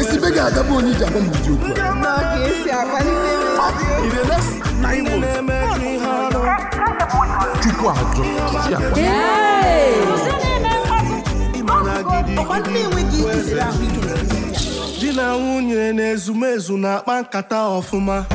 esi be ga-agabụ onye iji m ụdị okwu chukwu ajụ di na nwunye na ezumezu na-akpa nkata ọfụma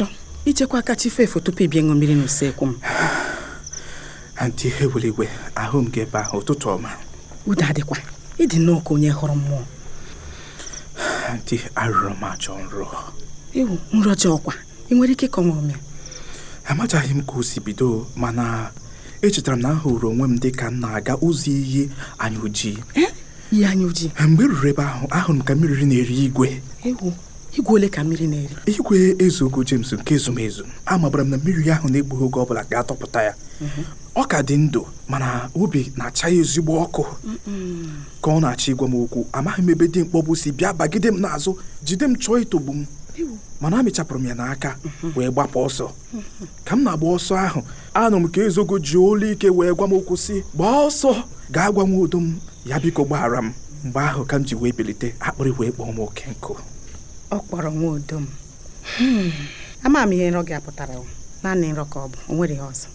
achọ ichekwa kacha chi feefu tupu ịbịa ịṅụ mmiri n'usekwu m antị ihe ahụ m gị ebe ahụ ụtụtụ ọma udo adịkwa ịdị nnọọ ka onye hụrụ mmụọ antị arụrụ m achọ nrọ ewu nrọ ji ọkwa ị nwere ike ịkọnwụrụ m ya amachaghị m ka o si bido mana echetara m na ahụrụ onwe m dị ka m na-aga ụzọ iyi anya ojii eh? ihe anya ojii mgbe e ruru ebe ahụ ahụrụ m ka mmiri na-eri igwe igwe ole ka mmiri na-eri igwe ezugo James nke ezumezu amabara m na mmiri ahụ na-egbughị oge ọbụla ga-atọpụta ya mhm. ọ ka dị ndụ mana obi na-acha ya ezigbo ọkụ ka ọ na-achọ ịgwa m okwu amaghị m ebe dị mkpọbụ si bịa bagide m n'azụ jide m chọọ itogbu m mana amịchapụrụ m ya n'aka mhm. wee gbapụ ọsọ mhm. ka m na-agba ọsọ ahụ anụ m ka ezogo ji olu ike wee gwa m okwu si gbaa ọsọ gaa gwa m udo m ya biko gbaghara m mgbe ahụ ka m ji wee bilite akpịrị wee kpọọ m oke nkụ ọ kpọrọ nwa udo m hmm. ama m ihe nrọ gị apụtara naanị nrọ ka ọ bụ o nwere ọzọ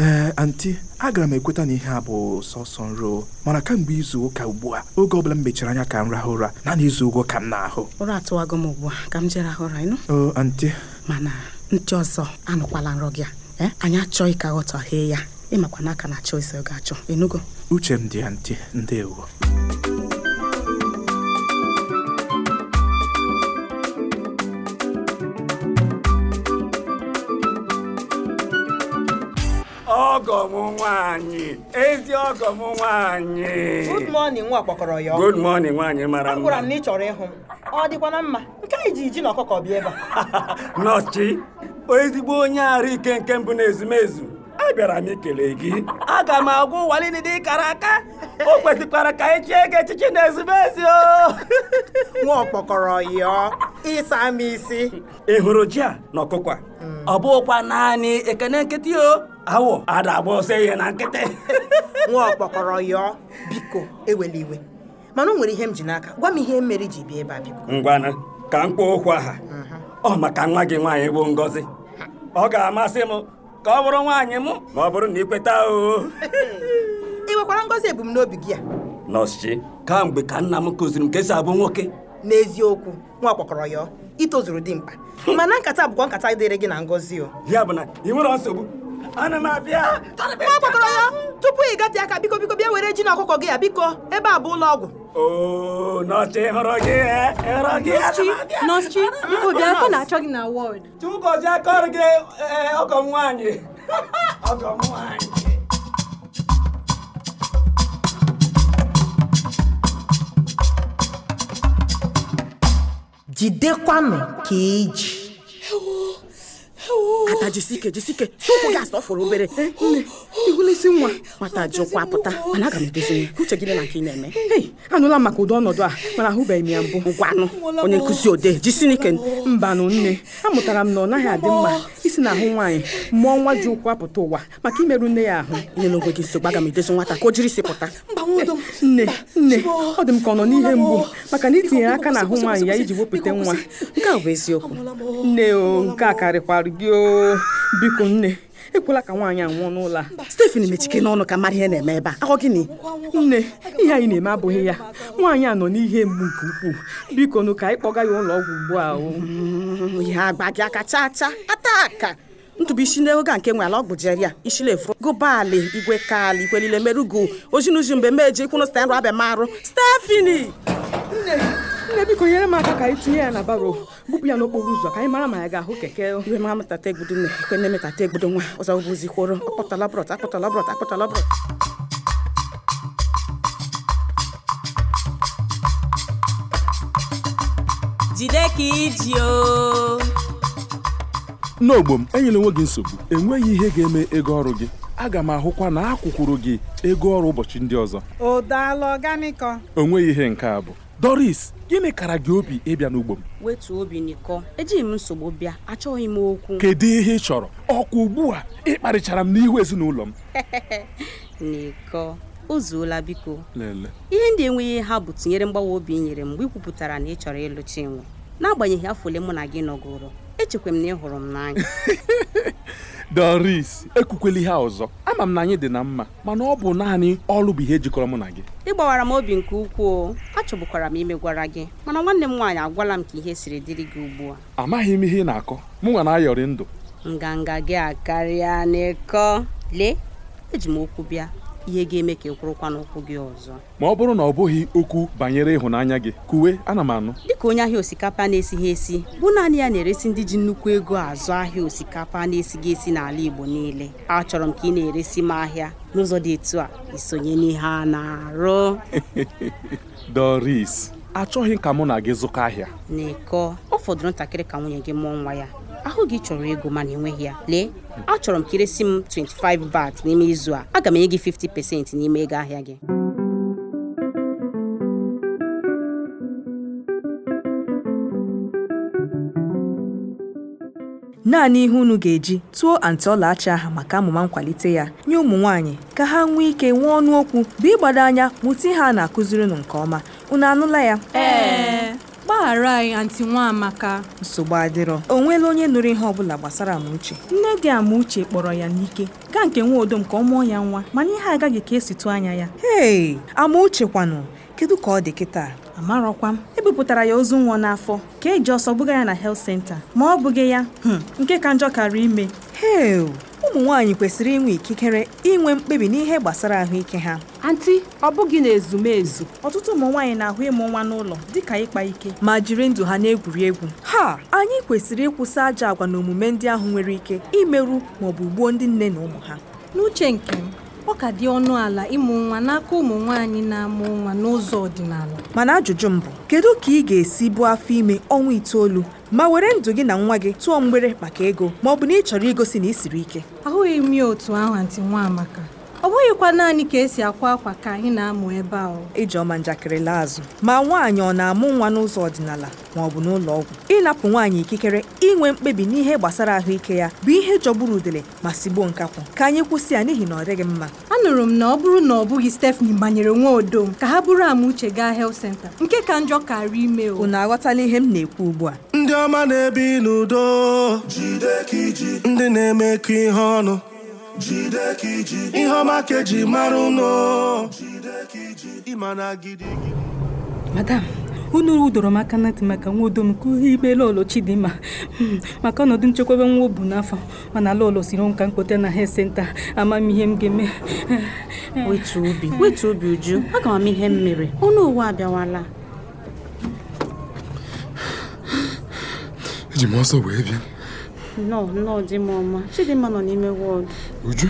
ee eh, anti agara m ekweta na ihe a bụ sọsọ nro mana kamgbe izu ụka ugbu a oge ọbụla m mechara anya ka m rahụ ụra naanị izu ụgwọ ka m na-ahụ ụra atụwago m ugbu a ka m jee rahụ ụra ịnụ o oh, anti mana ntị ọzọ anụkwala nrọ gị a eh, anyị achọghị ka ghọtaghee ya ịmakwa n'aka na achọ isi ọ ga-achọ enugo uche m dị ya ndị ewo ọgọ m nwaanyị ezi ọgọ m nwaanyị good nwa kpọkọrọ ya good morning nwaanyị mara mma agwara m na ị chọrọ ịhụ m ọ dịkwa na mma nke anyị ji ji na ọkụkọ bịa ebe a nọchi ezigbo onye arụ ike nke mbụ na ezumezu abịara m ikele gị aga m agwa ụwa niile dị kara aka o kwesịkwara ka anyị chie gị echichi na ezumezu nwa ọkpọkọrọ ya ịsa m isi ị hụrụ ji a na ọkụkọ a hmm. ọ bụghịkwa naanị ekene nkịtị o awọ ada agba ọsọ ihe na nkịtị nwa ọkpọkọrọ yọọ biko ewele iwe mana o nwere ihe m ji n'aka gwa m ihe mere ji bịa ebe a biko ka m kpọọ okwu aha ọ maka nwa gị nwaanyị bụ Ngozi ọ ga-amasị m ka ọ bụrụ nwaanyị m ma ọ bụrụ na ị kweta oo ị nwekwara Ngozi ebumnobi gị a nọọsụ kamgbe ka nna m kụziri m ka abụ nwoke n'eziokwu nwa ọkpọkọrọ yọọ itozuru dị mkpa mana nkata bụkwa nkata dịrị gị na Ngozi o ya bụ na ị nwere nsogbu ana m abịa ya tupu ị gate aka biko biko bịa were ji na ọkụkọ gị ya biko ebe a bụ ụlọ ọgwụ nọọsụ biko bịa ọ na-achọ gị na wọd akọrọ gị eh, ọgọ nwaanyị ọgọ nwaanyị jidekwanụ ka eji nna jisike jisike si ụkwụ gị asọfụrụ obere eh, ihulesi nwa mata ji pụta eh, mana aga m edozi uche gịnị na nke ị na-eme eh, anụla m maka ụdị ọnọdụ a mana ahụbeghị m ya mbụ ngwanụ onye nkụzi odee jisinike mbanụ nne amụtara m na ọ naghị adị mma isi na ahụ nwaanyị mụọ nwa ji ụkwụ apụta ụwa maka imerụ nne ya ahụ nyela onwe gị nsogbu aga m edozi nwata ka o jiri si pụta nne nne ọ dị m ka ọ nọ n'ihe mgbu maka na itinyere aka ahụ nwaanyị ya iji wepụta nwa nke a bụ eziokwu nne o nke a karịkwara gị o biko nne ekwela ka nwaanyị a nwụọ n'ụlọ a Stephen mechike n'ọnụ ka mara ihe na-eme ebe a akọ gịnị nne ihe anyị na-eme abụghị ya nwaanyị a nọ n'ihe mgbu nke ukwuu biko nụ ka anyị kpọga ya ụlọ ọgwụ ugbu a ya mm, agba gị aka chaa chaa ata ntụbụ isi n'oge a nke nwere ala ọgwụ jeria isile furu gụbalị igwe kali ikwelile merugo ozinuzi mgbe meje kwụnụ stanrụ abịa marụ Stefani nne biko nyere m aka ka anyị tinye ya na baro bupụ ya n'okporo ụzọ ka anyị mara ma ya ga-ahụ keke iwe ma metata egbudo nne ikwe nne metata nwa ọzọ bụzi kworo akpọtala brọt akpọtala brọt akpọtala brọt jide ka iji o n'ogbo m enyela onwe gị nsogbu enweghị ihe ga-eme ego ọrụ gị aga m ahụkwa na akwụkwụrụ gị ego ọrụ ụbọchị ndị ọzọ o daala onweghị ihe nke a bụ Doris gịnị kara gị obi ịbịa n'ugbo m wetuo obi n'iko ejighị m nsogbu bịa achọghị m okwu kedu ihe ị chọrọ ọkwa ugbu a ịkparịchara m n'ihu ezinụlọ m n'iko ụzuola biko ihe ndị enweghị ha bụ tinyere mgbawa obi nyere m ị ikwupụtara na ị chọrọ ịlụ Chinwe n'agbanyeghị afọ ole mụ na gị nọgoro echekwa m na ị hụrụ m n'anya Doris ekwukwela ihe ọzọ ama m na anyị dị na mma mana ọ bụ naanị ọlụ bụ ihe jikọrọ mụ na gị ị gbawara m obi nke ukwuu achọgbukwara m imegwara gị mana nwanne m nwaanyị agwala m ka ihe siri dịrị gị ugbu a amaghị m ihe ị na-akọ m nwa na-ayọrị ndụ nganga gị akarịa n'ịkọ lee eji m okwu bịa ihe ga-eme ka ị kwụrụkwa n'ụkwụ gị ọzọ ma ọ bụrụ na ọ bụghị okwu banyere ịhụnanya gị kuwe ana m anụ dịka onye ahịa osikapa na-esighị esi bụ naanị ya na-eresi ndị ji nnukwu ego azụ ahịa osikapa na-esighị esi n'ala Igbo niile achọrọ m ka ị na-eresi m ahịa n'ụzọ dị etu a isonye n'ihe a na-arụ Doris achọghị ka mụ na gị zụkọ ahịa n'ịkọ ọ fọdụrụ ntakịrị ka nwunye gị mụọ nwa ya ahụ gị chọrọ ego mana enweghị ya lee achọrọ m ka iresi m 25 bat n'ime izu a aga m enye gị 50 n'ime ego ahịa gị naanị ihe unu ga-eji tụọ antị ọlaọcha ahụ maka amụma nkwalite ya nye ụmụ nwaanyị ka ha nwee ike nwee ọnụ okwu bụ ịgbado anya mụta ihe a na-akụziri unu nke ọma unu anụla ya ee gbaghara anyị antị amaka nsogbu adịrọ o nweela onye nụrụ ihe ọbụla gbasara amauche nne dị amauche kpọrọ ya n'ike gaa nke nwaodom ka ọ mụọ ya nwa mana ihe agaghị ka esitụ anya ya hei amauche kwanụ kedu ka ọ dị kịta amarọkwa m e ya ozu nwa n'afọ ka eji ọsọ bụga ya na health center ma ọ bụghị ya hmm, nke ka njọ kara ime he ụmụ nwaanyị kwesịrị inwe ikikere inwe mkpebi n'ihe gbasara ahụike ha anti ọ bụghị na ezumezu ọtụtụ ụmụ nwaanyị na-ahụ ịmụ nwa n'ụlọ dịka ịkpa ike ma jiri ndụ ha na-egwuri egwu ha anyị kwesịrị ịkwụsị ajọ agwa na omume ndị ahụ nwere ike imerụ ma ọ bụ gbuo ndị nne na ụmụ ha n'uche nke m ọ ka dị ọnụ ala ịmụ nwa n'aka ụmụ nwaanyị na-amụ nwa n'ụzọ ọdịnala mana ajụjụ mbụ, bụ kedu ka ị ga-esi bụ afọ ime ọnwa itoolu ma were ndụ gị na nwa gị tụọ mgbere maka ego ma ọ bụ na ị chọrọ igosi na ị siri ike ahụghị m ya otu ahụ antị nwa ọ bụghịkwa naanị ka esi akwa akwa ka anyị na-amụ ebe a ijeọma njakịrị laa azụ ma nwaanyị ọ na-amụ nwa n'ụzọ ọdịnala ma ọ bụ n'ụlọ ọgwụ ịnapụ nwaanyị ikikere inwe mkpebi n'ihe gbasara ahụike ya bụ ihe jọgburu udele ma sigbuo nkakwụ ka anyị kwụsị ya n'ihi na ọ dịghị mma anụrụ m na ọ bụrụ na ọ bụghị Stephanie banyere nwa m ka ha bụrụ ama uche gaa health center nke ka njọ karịa ime o unu aghọtala ihe m na-ekwu ugbu a ndị ọma na-ebi n'udo ndị na-emekọ ihe ọnụ ihe ọma ka eji madam unu udoro m aka na ntị maka nwa udo m ka ihe ikpe lolo chidimma hmm, maka ọnọdụ nchekwaba nwa obu n'afọ mana lolo siri nka mkpote na he senta amam ihe m ga-eme hmm, hmm. wetu obi wetu obi uju aga m ihe m mere ọnụ ụwa abịawala eji m ọsọ wee bịa nọ nọ di m ọma chidimma nọ n'ime wọọdụ Uju.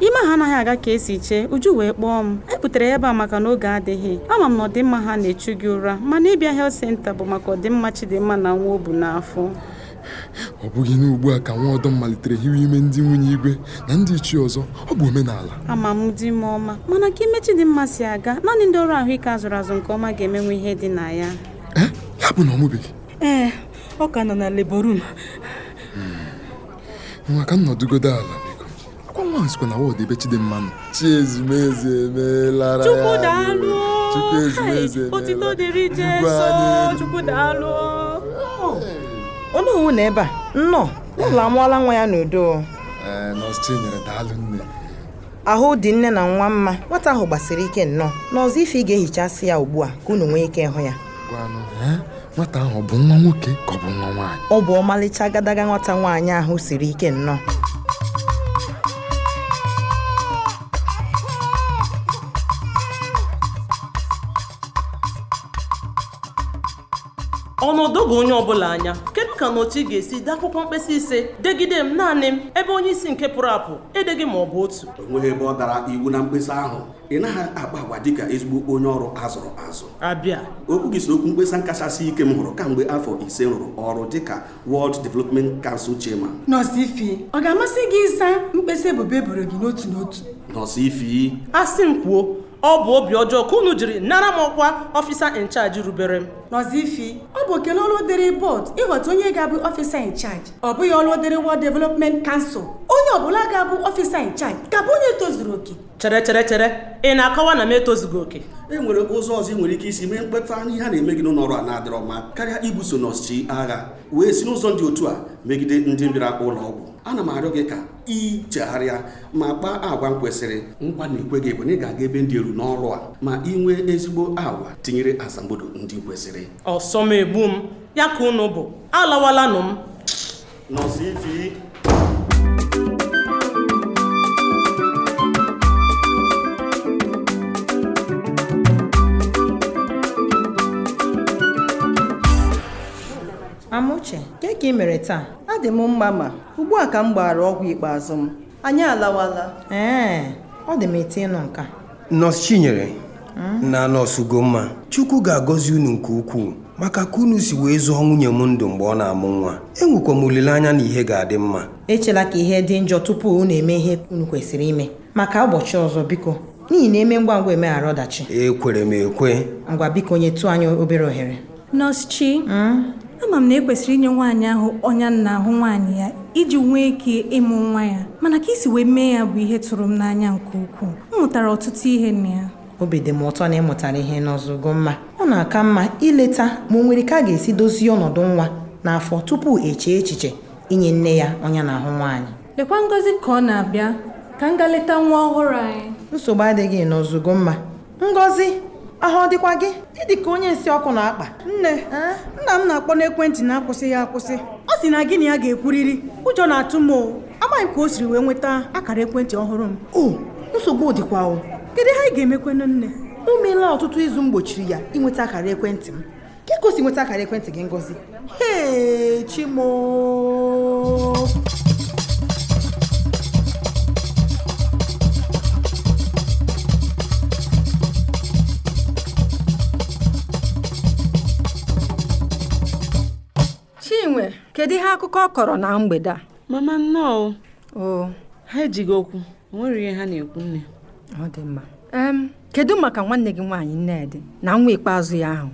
ime ha anaghị aga ka esi chee uju wee kpọọ m ebutere ebe a maka na oge adịghị ama m na ọdịmma ha na-echu gị ụra mana ịbịa helt senta bụ maka ọdịmma chidimma na nwa o bu n'afọ ọ bụghị n'ugbu a ka nwa ọdọ malitere hiwe ime ndị nwunye igwe na ndị ichie ọzọ ọ bụ omenala ama m di m ọma mana ka ime chidimma si aga naanị ndị ọrụ ahụike azụrụ azụ nke ọma ga-emenwe ihe dị na ya ee eh? ya bụ na ọ ee eh, ọ ka nọ na leborum nwa ka m ala akwa nwa na ọdụ ebe Chidimma nọ chi ezumeze Chukwu daalụ otito dịrị Chukwu daalụ onye owu na ebe a nnọọ ụlọ amụọla nwa ya n'udo eh, Chinyere ahụ dị nne na nwa mma nwata ahụ gbasiri ike nnọọ n'ọzọ ife ị ga-ehichasị ya ugbu a ka unu nwee ike ịhụ ya eh? nwata ahụ bụ nwa nwoke ka ọ bụ nwa nwaanyị ọ bụ ọmalịcha agadaga nwata nwaanyị ahụ siri ike nnọọ ọnọdụ gị onye ọbụla anya ka na otu ị ga-esi dee akwụkwọ mkpesa ise degide m naanị m ebe onye isi nke pụrụ apụ edeghị ma ọ bụ otu onweghị ebe ọ dara iwu na mkpesa ahụ ị naghị akpa agwa dịka ezigbo onye ọrụ azụrụ azụ abịa okwu gị so okwu mkpesa kachasị ike m hụrụ kamgbe afọ ise rụrụ ọrụ dịka World Development Council chairman nọọsụ ọ ga-amasị gị ịsa mkpesa ebubo eboro gị n'otu n'otu nọọsụ asị m kwuo ọ bụ obi ọjọọ ka unu jiri nara m ọkwa ọfisa incharge rubere m nọzifi ọ bụ okele ọlụ dịrị bọd ịghọta onye ga-abụ ọfisa incharge ọ bụghị ọlụ dịrị World Development kansụl onye ọbụla ga-abụ ọfisa incharge ka abụ onye tozuru oke chere chere chere ị na-akọwa na m etozughị oke e nwere ụzọ ọzọ ị nwere ike isi mee mkpeta ihe a na-eme gị n'ụlọ ọrụ a na-adịrọ mma karịa ibuso nọọsụ agha wee si n'ụzọ dị otu a megide ndị mbịara ụlọ ọgwụ ana m arịọ gị ka ị ma gbaa agwa m kwesịrị nkwa na ikwe gị bụ na ị ga-aga ebe ndị elu n'ọrụ a ma ị nwee ezigbo agwa tinyere asambodo ndị kwesịrị ọsọ m egbu m ya ka unu bụ alawalanụ m nọzi ifi Amuche, ka ị mere taa ọ dị m mma ma ugbu a ka m gbara ọgwụ ikpeazụ m anyị alawala ee ọ dị m eti ịnụ nka nọọsụ chinyere hmm? na nọsụ ugomma chukwu ga-agọzi unu nke ukwuu maka ka unu si wee zụọ nwunye m ndụ mgbe ọ na-amụ nwa enwekwa m olileanya na ihe ga-adị mma echela ka ihe dị njọ tupu unu eme ihe unu kwesịrị ime maka ụbọchị ọzọ biko n'ihi na eme ngwa ngwa emeghara ọdachi ekwere m ekwe ngwa biko nyetụ anyị obere ohere nọs chi hmm? ama m na ekwesịrị inye nwaanyị ahụ ọnya nna ahụ nwaanyị ya iji nwee ike ịmụ nwa ya mana ka isi wee mee ya bụ ihe tụrụ m n'anya nke ukwuu m mụtara ọtụtụ ihe na ya obi dị m ụtọ na ị mụtara ihe n'ọzụgo mma ọ na-aka mma ileta ma o nwere ka a ga-esi dozie ọnọdụ nwa n'afọ tupu echee echiche inye nne ya ọnya na-ahụ nwaanyị lekwa ngozi ka ọ na-abịa ka m ga leta nwa ọhụrụ anyị nsogbu adịghị n'ọzụgo mma ngozi ahụ ọ dịkwa gị ịdị ka onye nsị ọkụ na-akpa nne nna m na-akpọ n'ekwentị na-akwụsị ya akwụsị ọ sị na gị na ya ga-ekwuriri ụjọ na-atụ m o amaghị ka o siri wee nweta akara ekwentị ọhụrụ m o nsogbu dịkwa o kedu ha anyị ga-emekwanụ nne o meela ọtụtụ izu m gbochiri ya ịnweta akara ekwentị m ka o si nweta akara ekwentị gị ngozi hee chimo kedu ihe akụkọ ọ kọrọ na mgbede a mama nnọọ o ha ejighị okwu onwere ihe ha na-ekwu nne ọ dị mma kedu maka nwanne gị nwaanyị nnedị na nwa ikpeazụ ya ahụ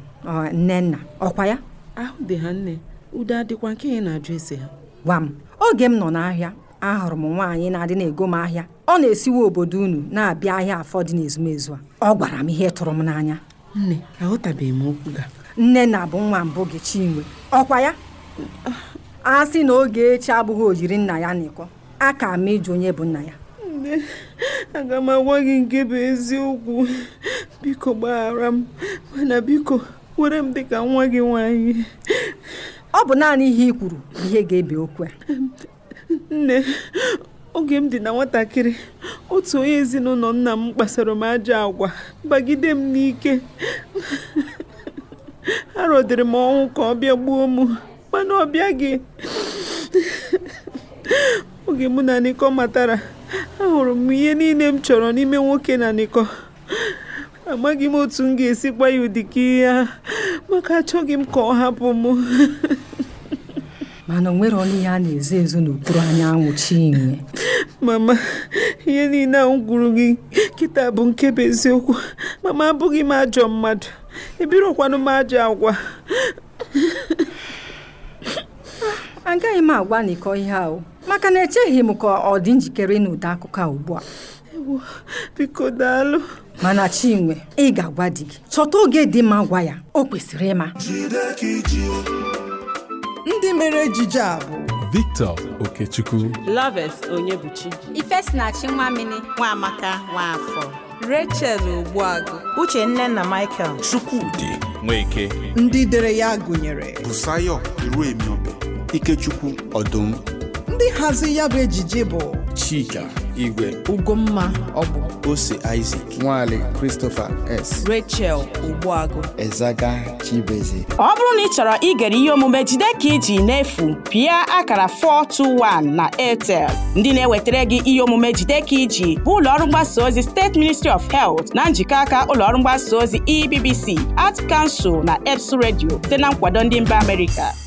nnenna ọkwa ya ahụ dị ha nne udo adịkwa nke ị na-ajụ ese ha gwa m oge m nọ n'ahịa ahụrụ m nwaanyị na-adị na-ego m ahịa ọ na esiwe obodo unu na-abịa ahịa afọ dị n'ezumezu a ọ gwara m ihe tụrụ m n'anya nne aghọtabeghị m okwu ga nnenna bụ nwa mbụ gị chinwe ọkwa ya a sị na oge echi abụghị ojiri nna ya n'ịkọ a ka ma ịjụ onye bụ nna ya aga m agwa gị nke bụ eziokwu biko gbaghara m mana biko were m dịka nwa gị nwanyị ọ bụ naanị ihe i kwuru ihe ga-ebe okwu a nne oge m dị na nwatakịrị otu onye ezinụlọ nna m kpasara m ajọ agwa bagide m n'ike arọdịrị m ọnwụ ka ọ bịa gbuo m ọkpa na ọ oge mụ na nịkọ matara ahụrụ m ihe niile m chọrọ n'ime nwoke na nịkọ amaghị m otu m ga-esi ya ụdị ka ihe a maka achọghị m ka ọ hapụ m mana o nwere ihe a na-ezo ezo n'okpuru anyanwụ chinwe mama ihe niile ahụ gwuru gị kịta bụ nke bụ eziokwu mama abụghị m ajọ mmadụ ebirokwanụ m ajọ agwa agaghị m agwa n'ikọ ihe ahụ maka na echeghị m ka ọ dị njikere n'ụdị akụkọ a ugbu a biko daalụ mana chinwe ị ga-agwa di gị chọta oge dị mma gwa ya o kwesịrị ịma ndị mere ejije a bụ Victor Okechukwu Loves Onyebuchi Ifesinachi Nwamini Nwaamaka Nwafọ Rachel Ogbuagụ Uchenna na Michael Chukwudi Nweke ndị dere ya gụnyere Busayo Iruemiobe Ikechukwu Ọdụm ndị nhazi ya bụ ejije bụ Chika Igwe Ugomma Ọbụ Ose Isaac Nwale Christopher S Rachel Ogbuagụ Ezaga Chibeze ọ bụrụ na ị chọrọ igere ihe omume jide ka iji n'efu pịa akara 421 na Airtel ndị na-ewetara gị ihe omume jide ka iji bụ ụlọọrụ mgbasa ozi steeti Ministry of Health na njikọ aka ụlọọrụ mgbasa ozi EBBC at kansụl na EBS redio site na nkwado ndị mba Amerịka